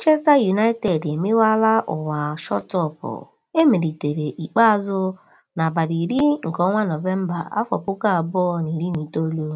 Manchester United emewala ụwa e emelitere ikpeazụ n'abalị iri nke ọnwa Nọvemba, afọ puku abụọ na iri itoolu